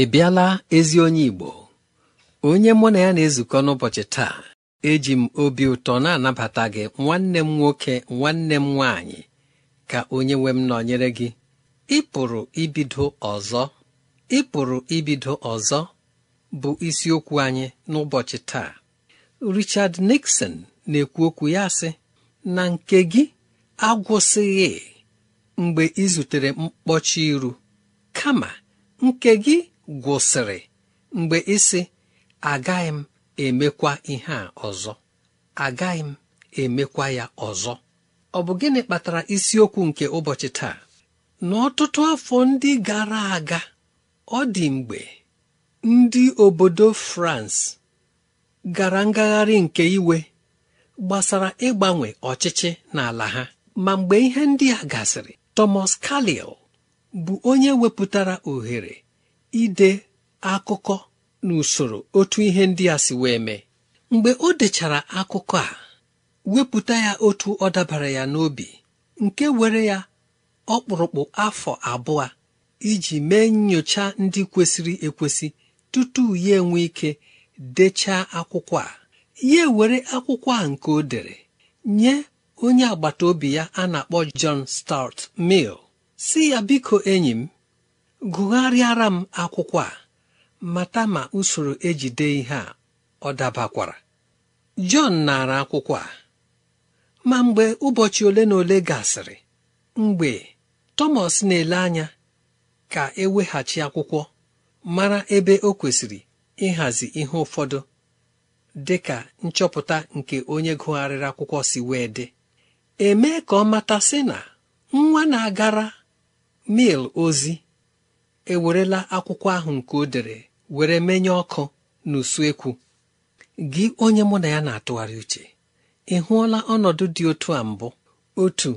ị bịala ezi onye Igbo onye mụ na ya na-ezukọ n'ụbọchị taa eji m obi ụtọ na-anabata gị nwanne m nwoke nwanne m nwaanyị ka onye nwe m nọnyere gị Ịpụrụ ibido ọzọ Ịpụrụ ibido ọzọ bụ isiokwu anyị n'ụbọchị taa Richard Nixon na-ekwu okwu ya sị na nke gị agwụsịghị mgbe ị zutere mkpọchi iru kama nke gị gwụsịrị mgbe ịsị agaghị m emekwa ihe a ọzọ agaghị m emekwa ya ọzọ ọ bụ gịnị kpatara isiokwu nke ụbọchị taa n'ọtụtụ afọ ndị gara aga ọ dị mgbe ndị obodo France gara ngagharị nke iwe gbasara ịgbanwe ọchịchị n'ala ha ma mgbe ihe ndị a gasịrị Thomas Carlyle bụ onye wepụtara ohere ide akụkọ n'usoro otu ihe ndị a si wee mee mgbe o dechara akụkọ a wepụta ya otu ọ dabara ya n'obi nke were ya ọkpụrụkpụ afọ abụọ iji mee nyocha ndị kwesịrị ekwesị tutu ya enwe ike dechaa akwụkwọ a ya were akwụkwọ a nke o dere nye onye agbata obi ya a na-akpọ John Stuart Mill si ya biko enyi m gụgharịara m akwụkwọ a mata ma usoro ejide ihe a ọ dabakwara Jọn nara akwụkwọ a ma mgbe ụbọchị ole na ole gasịrị mgbe Thomas na-ele anya ka eweghachi akwụkwọ mara ebe o kwesịrị ịhazi ihe ụfọdụ dị ka nchọpụta nke onye gụgharịrị akwụkwọ si wee dị emee ka ọ mata sị na nwa na-agara mil ozi ewerela akwụkwọ ahụ nke o dere were menye ọkụ n'usuekwu gị onye mụ na ya na-atụgharị uche ị hụọla ọnọdụ dị otu a mbụ otu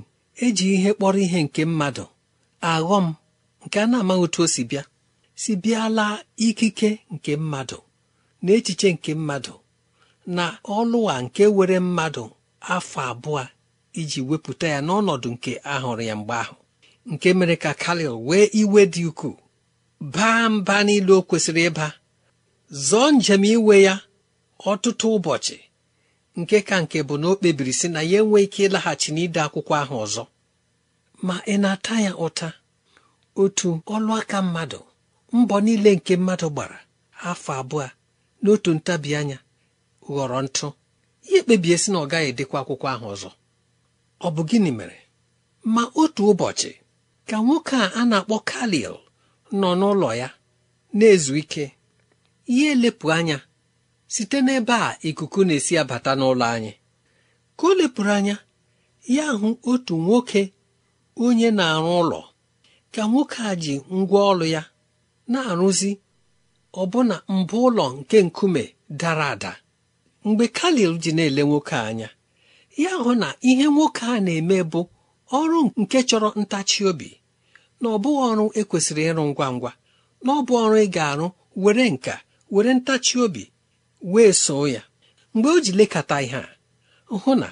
eji ihe kpọrọ ihe nke mmadụ aghọ m nke a na-amaghị otu o si bịa si bịala ikike nke mmadụ na echiche nke mmadụ na ọlụwa nke were mmadụ afọ abụọ iji wepụta ya n'ọnọdụ nke ahụrụ ya mgbe ahụ nke mere ka kalil wee iwe dị ukwuu baa mba niile o kwesịrị ịba zọọ njem iwe ya ọtụtụ ụbọchị nke ka nke bụ na o kpebiri sị na ya enwe ike ịlaghachi n'ide akwụkwọ ahụ ọzọ ma ị na-ata ya ụta otu ọlụ aka mmadụ mbọ niile nke mmadụ gbara afọ abụọ n'otu ntabi anya ghọrọ ntụ ihe kpebie sị na ọ gaghị edekwa akwụkwọ ahụ ọzọ ọ bụ gịnị mere ma otu ụbọchị ka nwoke a a na-akpọ kalil nọ n'ụlọ ya na-ezu ike ihe elepụ anya site n'ebe a ikuku na-esi abata n'ụlọ anyị ka o lepụrụ anya ya hụ otu nwoke onye na-arụ ụlọ ka nwoke a ji ngwa ọrụ ya na-arụzi ọbụna mbụ ụlọ nke nkume dara ada mgbe kalil ji na-ele nwoke anya ya hụ na ihe nwoke a na-eme bụ ọrụ nke chọrọ ntachi obi na ọ bụghị ọrụ ekwesịrị ịrụ ngwa ngwa na ọ bụ ọrụ ị ga-arụ were nka were ntachi obi wee soo ya mgbe o ji lekọta ihe a hụ na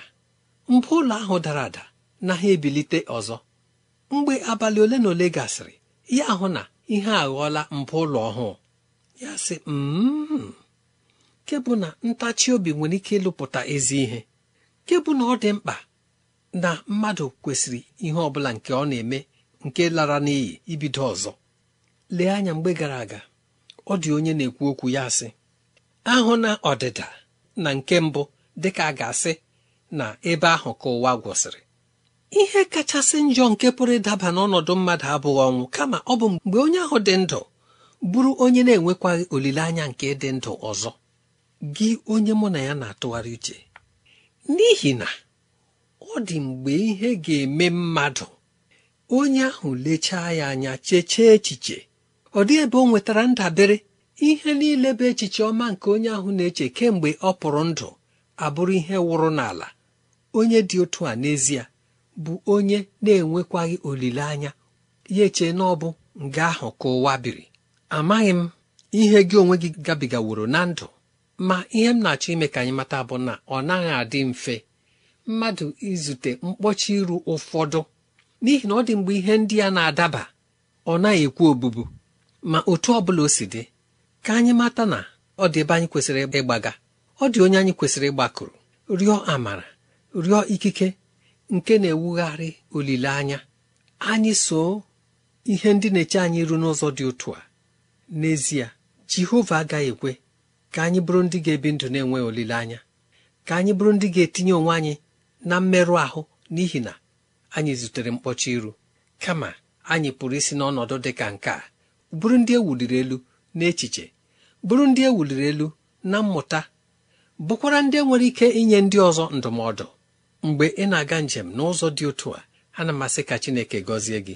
mbụ ụlọ ahụ dara ada na ha ebilite ọzọ mgbe abalị ole na ole gasịrị ya hụ na ihe aghọọla mbụ ụlọ ọhụụ ya sị m mm-hmm. na ntachi obi nwere ike ịlụpụta ezi ihe kebụ na ọ dị mkpa na mmadụ kwesịrị ihe ọ bụla nke ọ na-eme nke lara n'iyi ibido ọzọ lee anya mgbe gara aga ọ dị onye na-ekwu okwu ya sị ahụ na ọdịda na nke mbụ dịka a ga-asị na ebe ahụ ka ụwa gwụsịrị ihe kachasị njọ nke pụrụ ịdaba n'ọnọdụ mmadụ abụghị ọnwụ kama ọ bụ mgbe onye ahụ dị ndụ bụrụ onye na-enwekwaghị olileanya nke dị ndụ ọzọ gị onye mụ na ya na-atụgharị uche n'ihi na ọ dị mgbe ihe ga-eme mmadụ onye ahụ lechaa ya anya cheche echiche ọ dị ebe ọ nwetara ndabere ihe niile bụ echiche ọma nke onye ahụ na-eche kemgbe ọ pụrụ ndụ abụrụ ihe wụrụ n'ala onye dị otu a n'ezie bụ onye na-enwekwaghị olileanya ya eche na ọ bụ nga ahụ ka ụwa biri amaghị m ihe gị onwe gị gabigaworo na ndụ ma ihe m na-achọ ime ka anyị mata bụ na ọ naghị adị mfe mmadụ izute mkpọchi iru ụfọdụ n'ihi na ọ dị mgbe ihe ndị a na-adaba ọ naghị ekwu obubu ma otu ọ bụla o si dị ka anyị mata na ọ dị ebe anyị kwesịrị ịgbaga ọ dị onye anyị kwesịrị ịgbakụrụ rịọ amara rịọ ikike nke na-ewugharị olileanya anyị so ihe ndị na-eche anyị ru n'ụzọ dị otu a n'ezie jehova agaghị ekwe ka anyị bụrụ ndị ga-ebi ndụ na-enweghị olileanya ka anyị bụrụ ndị ga-etinye onwe anyị na mmerụ ahụ n'ihi na anyị zutere mkpọcha iru kama anyị pụrụ isi n'ọnọdụ dị ka nke a bụrụ ndị ewuliri elu n'echiche bụrụ ndị ewuliri elu na mmụta bụkwara ndị e nwere ike inye ndị ọzọ ndụmọdụ mgbe ị na-aga njem n'ụzọ dị otu a ana asị ka Chineke gọzie gị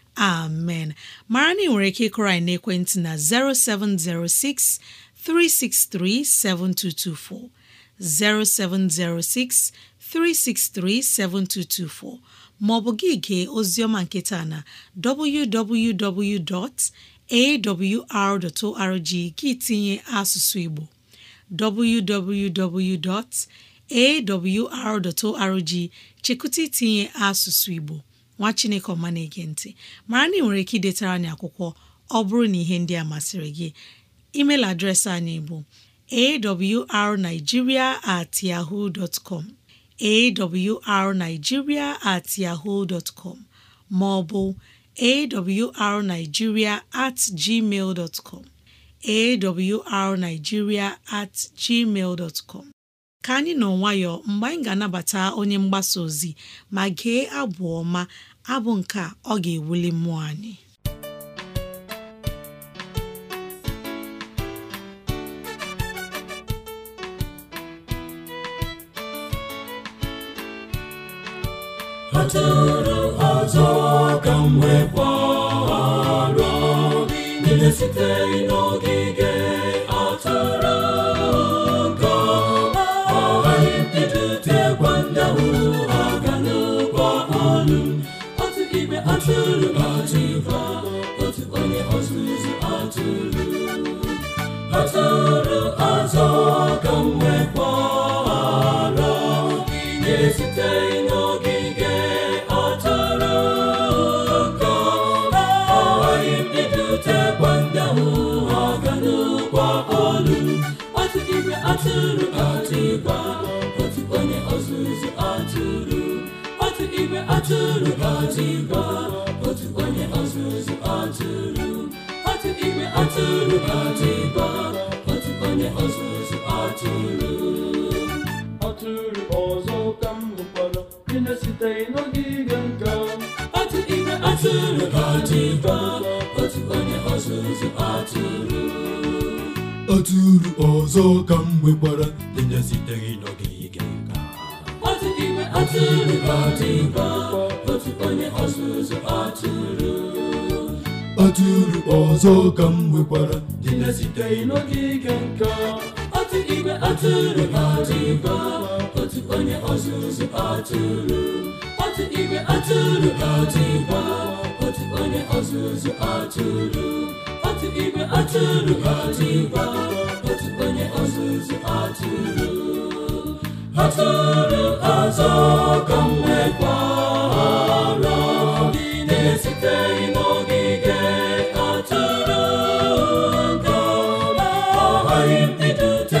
amen mara na ị nwere ike ịkụrọ anyị n'ekwentị na 0706 363 7224 0706 363 7224 maọbụ gị gee oziọma nketa na www.awr.org gị tinye asụsụ Igbo www.awr.org chekụta itinye asụsụ Igbo nwa chineke ọma na-ege ntị mara na ị nwere ike idetara anyị akwụkwọ ọ bụrụ na ihe ndị a masịrị gị email adreesị anyị bụ arigiria at yahoo com awrnigeria at yahoo com ma ọ bụ awrnigeria at gmail com awrnigeria at gmail dot com ka anyị nọ nwayọọ mgbe anyị ga-anabata onye mgbasa ozi ma gee abụ ọma abụ nke a ọ ga-ewuli mmụọ anyị ọtụrụ tụrụ ọzọ ka mgbe wee gbara niile sitere n'ogige ọtụrụ ka ọ ghaghị mbido tegwa ụzọ mwekwara na n'ogige atara ka agaghị m idutekwa ndị ahụ ha atụrụ otu onye ọzụzụ atụrụ otu onye ọzụzụ atụrụ otu onye ọzụzụ atụrụ atụrụ ọzọ ka m hụkwara dị na site n'ogige nka otu igwe atụrụ ka otu onye ọzụzụ atụrụ atụrụ ọzọ ka m nwekwara dị na site n'ogige nka otu igwe atụrụ ka otu onye ọzụzụ atụrụ atụrụ ọzọ ka m nwekwara dị na site n'ogige nka igwe atụrụ otu onye ọzụzụ atụrụ otu igwe atụrụ otu ọzụzụ atụrụ otu igwe atụrụ otu onye ọzụzụ atụrụ atụrụ ọzọ ka na n'ogige atụrụ ga ọ ndị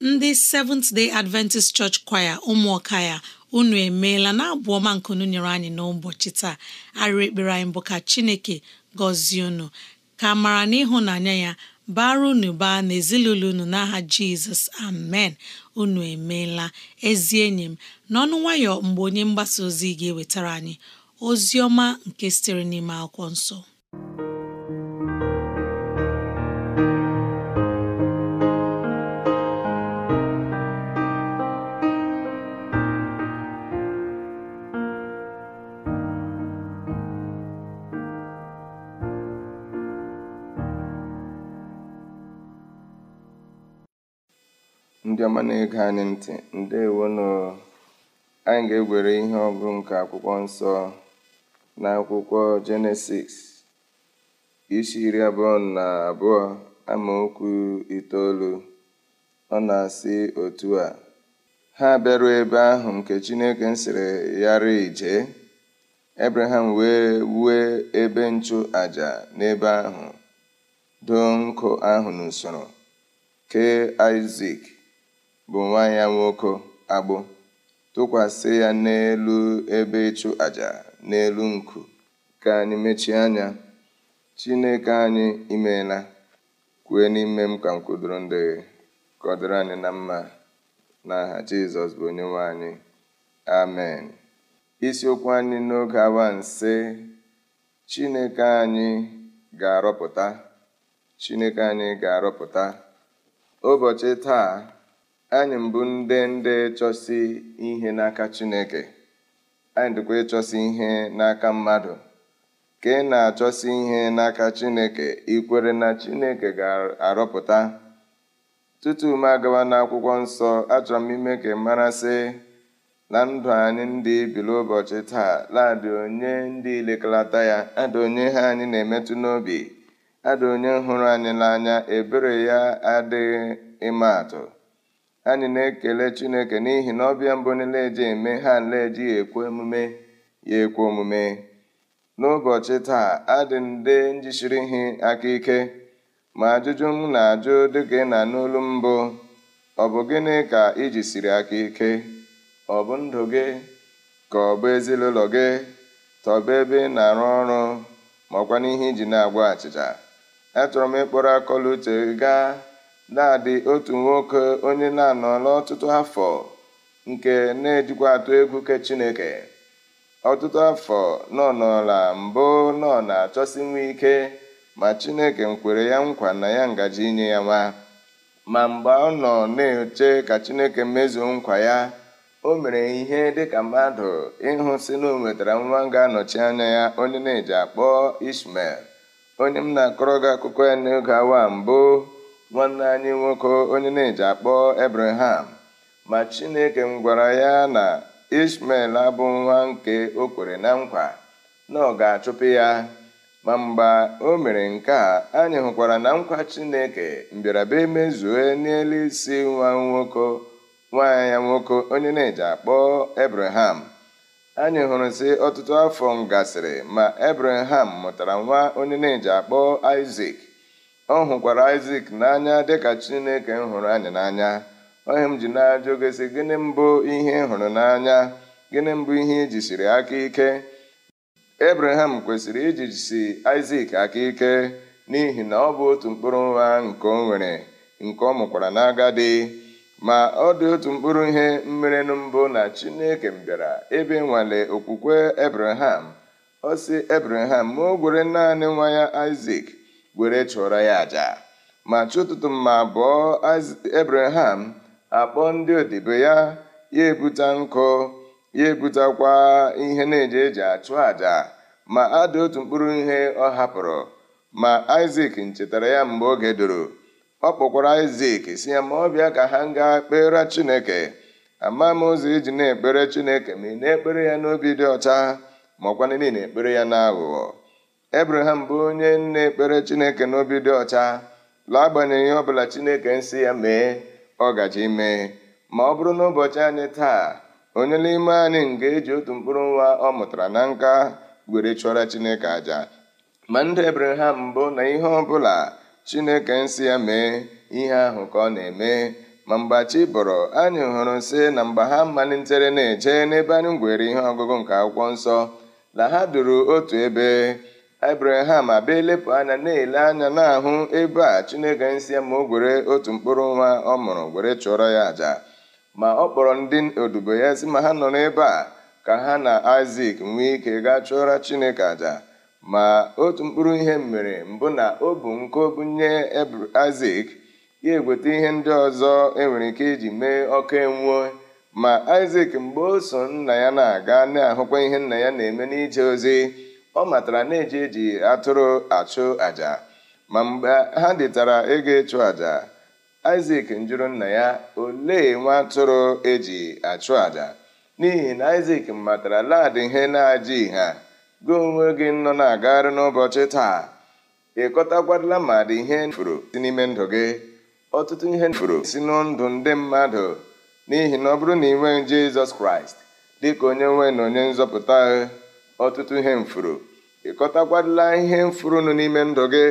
ndị Seventh Day Adventist Church Choir ụmụọka ya unu emeela na abụ ọma nkunu nyere anyị n'ụbọchị taa arịrị ekpere anyị bụ ka Chineke gọzie unu ka mara na ịhụnanya ya bara unu baa ezinụlọ unu n'aha Jizọs amen unu emeela ezi enyi m n'ọnụ nwayọ mgbe onye mgbasa ozi ga-ewetara anyị ozi ọma nke sitere n'ime akwụkwọ nsọ ọma na-ege anyị ntị ndewono anyị ga-egwere ihe ọgụ nke akwụkwọ nsọ na akwụkwọ jenesis isi iri abụọ na abụọ amaokwu itoolu ọ na-asị otu a ha bịaruo ebe ahụ nke chineke sịrị yara ije ebraham wee wue ebe nchụ aja n'ebe ahụ doo nkụ ahụ n'usoro kee isak bụ nwaanyị ya nwoke agbụ tụkwasị ya n'elu ebe ịchụ aja n'elu nku ka anyị mechie anya Chineke anyị imeela kwue n'ime m ka m ndị anyị na mma n'aha Jizọs bụ onye nwaanyị amen isiokwu anyị n'oge awa nse Chineke anyị ga-arọpụta Chineke anyị ga-arọpụta ụbọchị taa anyị mbụ ndị ndị chọsi ihe n'aka Chineke anyị dịkwa ịchọsi ihe n'aka mmadụ ka ị na-achọsi ihe n'aka Chineke ikwere na Chineke ga-arọpụta tutu m agawa n'akwụkwọ nsọ achọrọ m ime ka marasị na ndụ anyị ndị bilu ụbọchị taa ladị onye ndị ilekalata ya ada onye ha anyị na-emetụ n'obi ada onye hụrụ anyị n'anya ebere ya adịghị ịma atụ anyị na-ekele chineke n'ihi na ọbịa mbụ niile eji eme ha nle eji ya ekwe omume ya ekwe omume n'ụbọchị taa adị nde njisiri ihe aka ike ma ajụjụ m na-ajụ dịka ị na n'olu mbụ ọ bụ gịnị ka iji siri aka ike ọ bụ ndụ gị ka ọ bụ ezinụlọ gị tọba ebe na-arụ ọrụ makwa n'ihe iji na-agwa achịcha achọrọ m ịkpọrọ akọla uche gaa na-adị otu nwoke onye na-anọla ọtụtụ afọ nke na-ejikwa atụ egwu ke Chineke ọtụtụ afọ nọ n'ọla mbụ nọ na-achọsi nwa ike ma Chineke nkwere ya nkwa na ya ngaji inye ya nwa ma mgbe ọ nọ na-eche ka Chineke mezuo nkwa ya o mere ihe dịka mmadụ ịhụ si na o nwetara nwa ga-anọchi anya ya onye na-eji akpọ Ishmael onye m na-akọrọ gị akụkọ ya n'oge awa mbụ nwanne anyị nwoke onye na-eji akpọ Abraham ma Chineke m gwara ya na Ismael abụ nwa nke o kwere na nkwa na ọ ga-achụpụ ya ma mgbe o mere nke a anyị hụkwara na nkwa Chineke mbịarabịa emezue n'elu isi nwa nwoke nwa ya nwoke onye na-eji akpọ Abraham anyị hụrụ sị ọtụtụ afọ m gasịrị ma Abraham mụtara nwa onye na-eji akpọ Isaac ọ hụkwara isak n'anya dịka Chineke m hụrụ anyị n'anya onye m ji na-ajụ gị gịnị mbụ ihe ị hụrụ n'anya gịnị mbụ ihe ijisiri aka ike Ebraham kwesịrị ijisi Aịzik aka ike n'ihi na ọ bụ otu mkpụrụ nwa nke o nwere nke ọ mụkwara n'agadi ma ọ dị otu mkpụrụ ihe mmerenu mbụ na Chineke bịara ebe nwale okwukwe Ebraham ọ sị Ebraham ma o gwere naanị nwa ya isak were chụọrọ ya àjà ma chi ụtụtụ mma bụọ Abraham akpọ ndị odibo ya ya ebute nkụ ya ebutakwa ihe na eje eji achụ àjà ma ada otu mkpụrụ ihe ọ hapụrụ ma isak nchetara ya mgbe oge doro ọ kpọkwara isak si ya ma ọ bịa ka ha gaa kpere Chineke ama m ụzọ iji na-ekpere Chineke ma ị na-ekpere ya n'obi dị ọcha ma ọkwanị niile ekpere ya n'aghụghọ ebraham bụ onye nna ekpere chineke n'obi dị ọcha laa ihe ọbụla chineke nsị ya mee ọ gaji ime ma ọ bụrụ n'ụbọchị anyị taa onye n'ime anyị nga eji otu mkpụrụ nwa ọ mụtara na nka were chụọra chineke aja ma ndị ebraham mbụ na ihe ọbụla chineke nsị ya mee ihe ahụ ka ọ na-eme ma mgbachi bọrọ anyị hụrụ nsị na mgbe ha malitere na-eje n'ebe anyị gwere ihe ọgụgụ nke akwụkwọ nsọ na ha duru otu ebe Ebreham abịa-elepụ anya na-ele anya na-ahụ ebe a Chineke nsị ma o gwere otu mkpụrụ nwa ọ mụrụ gwere chụọrọ ya àjà ma ọ kpọrọ ndị odibo ya sị ma ha nọ n'ebe a ka ha na Aịzik nwee ike gaa chụọra Chineke àjà ma otu mkpụrụ ihe mere mbụ na o bu nko nye Aịzik ya egweta ihe ndị ọzọ enwere ike iji mee ọkụ enwuo ma Aịzik mgbe o so nna ya na-aga na-ahụkwa ihe nna ya na-eme n'ije ozi ọ matara na eji eji atụrụ achụ àjà ma mgbe ha dịtara ego ịchụ àjà Isaac njụrụ nna ya olee nwa atụrụ eji achụ àjà n'ihi na Isaac matara laadị ihe na-aja ha gị onwe gị nọ na-agagharị n'ụbọchị taa ịkọtakwarịla ma dị ihe furu si n'ime ndụ gị ọtụtụ ihe furu si n'ndụ ndị mmadụ n'ihi na ọ bụrụ na ị nweghị Jizọs Kraịst dịka onye nwe na onye nzọpụta ọtụtụ ihe mfuru ị ihe ihe nụ n'ime ndụ gị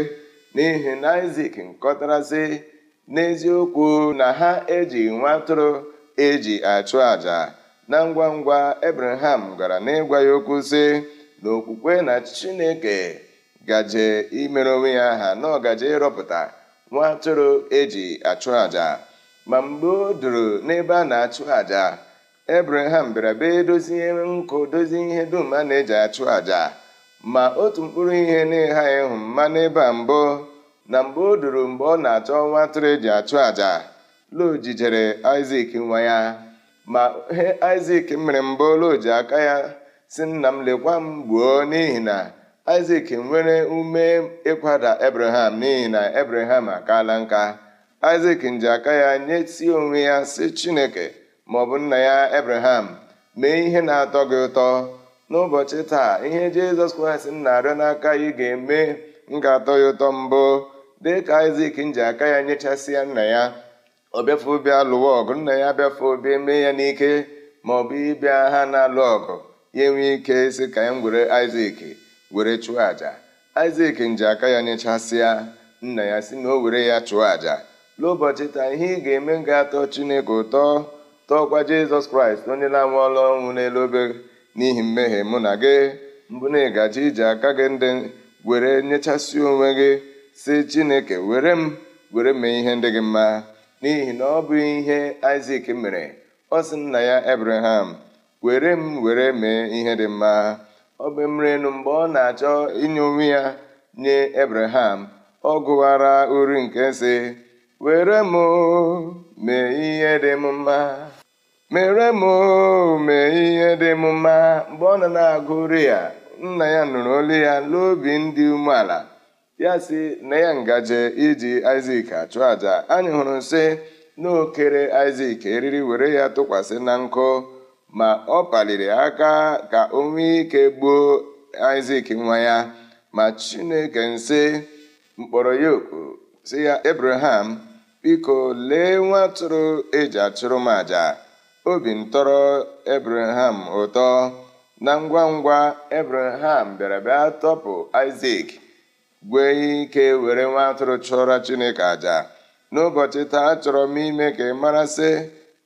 n'ihi na nkọtara nkọtarasị n'eziokwu na ha eji nwa atụrụ eji achụ àjà na ngwa ngwa Abraham gara n'ịgwa ya okwu sị na okwukwe na Chineke gaje imere onwe ya aha na ọgaje ịrọpụta nwa atụrụ eji achụ àjà ma mgbe o duru n'ebe a na-achụ àjà Ebreham bịara bee dozie nkụ dozie ihe dum a na-eji achụ àjà ma otu mkpụrụ ihe na-ịghaghị ịhụ mmanụ ịba a mbụ na mgbe o doro mgbe ọ na-achọ nwa atụrụ eji achụ àjà Lo jijere Isak nwa ya ma ihe Isak mere mbụ Lo ji aka ya si nna m lekwa m gbuo n'ihi na Isak nwere ume ịkwada Ebreham n'ihi na Ebreham akaala nka Isak nji aka ya nye si onwe ya si Chineke maọbụ nna ya ebraham mee ihe na-atọ gị ụtọ n'ụbọchị taa ihe jizọs kraịst na-arịọ n'aka ya ga-eme m ga-atọ ya ụtọ mbụ dị ka isak nji aka ya nyechasịa nna ya ọ bịafe bịa lụwa ọgụ nna ya bịafe obi mee ya n'ike maọbụ ịbịa ha na-alụ ọgụ ya enwee ike si ka ya were isak were chụọ aja. isak nji aka ya nyechasịa nna ya si na o were ya chụọ aja. n'ụbọchị taa ihe ị ga-eme ga-atọ chineke ụtọ tọọkwa jizọs kraịst onye na-anwụ ọlụ ọnwụ n'elu obe n'ihi mmehie mụ na gị mbụ na ịgaji iji aka gị ndị were nyechasị onwe gị si chineke were m were mee ihe ndị gị mma n'ihi na ọ bụ ihe isak mere ọ sị nna ya ebreham were m were mee ihe dị mma ọ bụ mmiri enu mgbe ọ na-achọ inye onwe ya nye ebreham ọ gụwara uri nke si were m mee ihe dị m mma mere m mee ihe dị m mma mgbe ọ nọ na-agụrụ ya nna ya nụrụ olu ya n'obi ndị umeala ya si na ya ngaje iji isak achụ àjà anyị hụrụ sị na okere isak eriri were ya tụkwasị na nkụ ma ọ paliri aka ka o nwee ike gbuo isak nwa ya ma chineke nsị mkpọrọ ya oku ya abraham biko lee nwa atụrụ eji achụrụ m àjà Obi ntọrọ Ebreham ụtọ, na ngwa ngwa Ebreham bịara bịa tọpụ isak gwee ike were nwa atụrụ chụọra Chineke aja n'ụbọchị taa achọrọ m ime ka ị marasị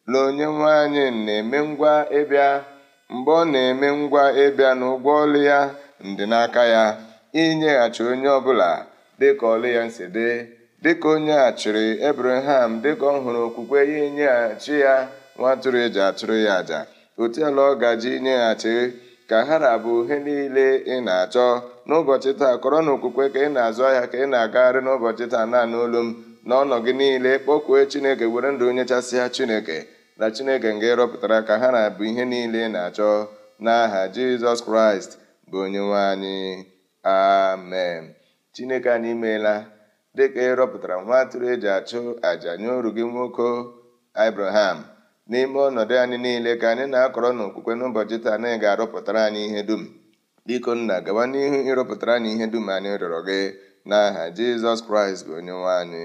na onye anyị na-eme ngwa ịbịa mgbe ọ na-eme ngwa ịbịa ụgwọ ọlụ ya ndị n'aka ya inyeghachi onye ọbụla dịka ọlụ ya si dị dịka onye achịrị Ebreham dịka ọ hụrụ okwukwe ya inyeghachi ya nwa atụrụ eji atụrụ ya àjà otu ala ọ gaji nyeghachi ka ha bụ ihe niile ị na-achọ n'ụbọchị taa kọrọ na okwukwe ka ị na-azụ ahịa ka ị na-agagharị n'ụbọchị taa naanị olu m n'ọnọ gị niile kpọkwue chineke were ndụ nyechasịa chineke na chineke nga ịrọpụtara ka ha na-abụ ihe niile ị na-achọ n'aha jizọs kraịst bụ onyenwe anyị amen chineke anyị imeela dịka ịrọpụtara nwa atụrụ eji achụ àjà nye oru gị nwoke abraham n'ime ọnọdụ anyị niile ka anyị na-akọrọ n'okwukwe n'ụbọchị taa na ị ga-arụpụtara anyị ihe dum biko nna gawa n'ihu ịrụpụtara anyị ihe dum anyị rịọrọ gị n'aha Jizọs Kraịst bụ onye nwe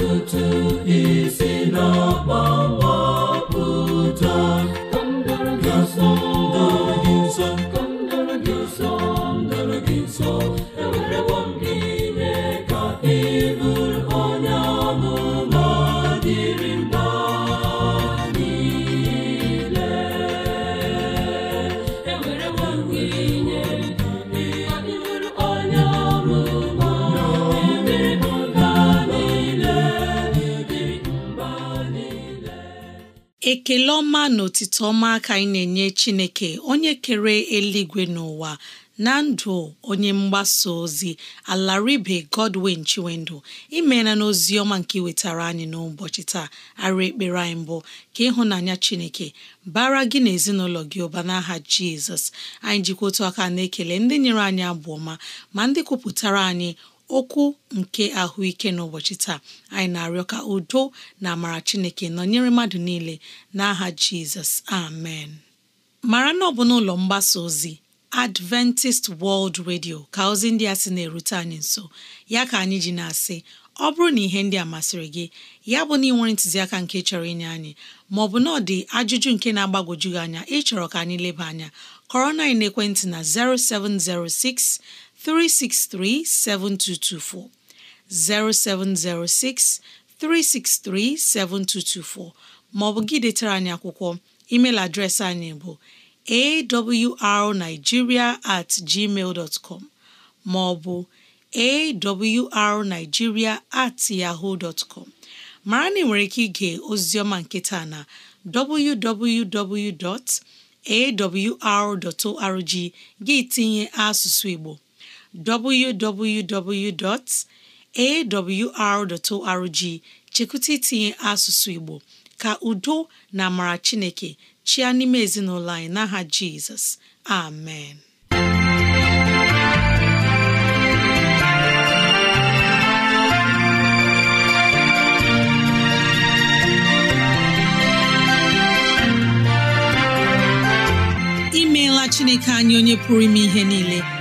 ọtụtụ isi n'ọkpọ mkpọpụta ekele ọma na otito ọma aka anyị na-enye chineke onye kere eluigwe n'ụwa na ndụ onye mgbasa ozi alaribe godwin chiwendụ imeela n'ozi ọma nke iwetara anyị n'ụbọchị taa arụ ekpere anyị mbụ ka ịhụnanya chineke bara gị na ezinụlọ gị ụba n'aha jizọs anyị jikwa otu aka na-ekele ndị nyere anyị abụ ọma ma ndị kwupụtara anyị okwu nke ahụike n'ụbọchị taa anyị na-arịọ ka udo na amara chineke nọnyere mmadụ niile n'aha jizọs amen mara na ọ bụ n'ụlọ mgbasa ozi Adventist World Radio ka ozi ndị a sị na-erute anyị nso ya ka anyị ji na-asị ọ bụrụ na ihe ndị a masịrị gị ya bụ na ị nwere ntụziaka nke chọrọ inye anyị maọbụ na ọ dị ajụjụ nke na-agbagwoju gị anya ịchọrọ ka anyị leba anya kọrọ na ekwentị na 0706 363 7224 0706 363 7224 maọbụ gị detara anyị akwụkwọ email adreesị anyị bụ awrnigeria at gmail dot com maọbụ awrnigeria at yahoo dot com mara na ị nwere ike ige oziọma nketa na www.awr.org gị tinye asụsụ Igbo www.awr.org chekwụta itinye asụsụ Igbo ka udo na amara Chineke chia n'ime ezinụlọ anyị n'aha Jizọs amen imeela Chineke anyị onye pụrụ ime ihe niile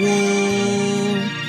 woo!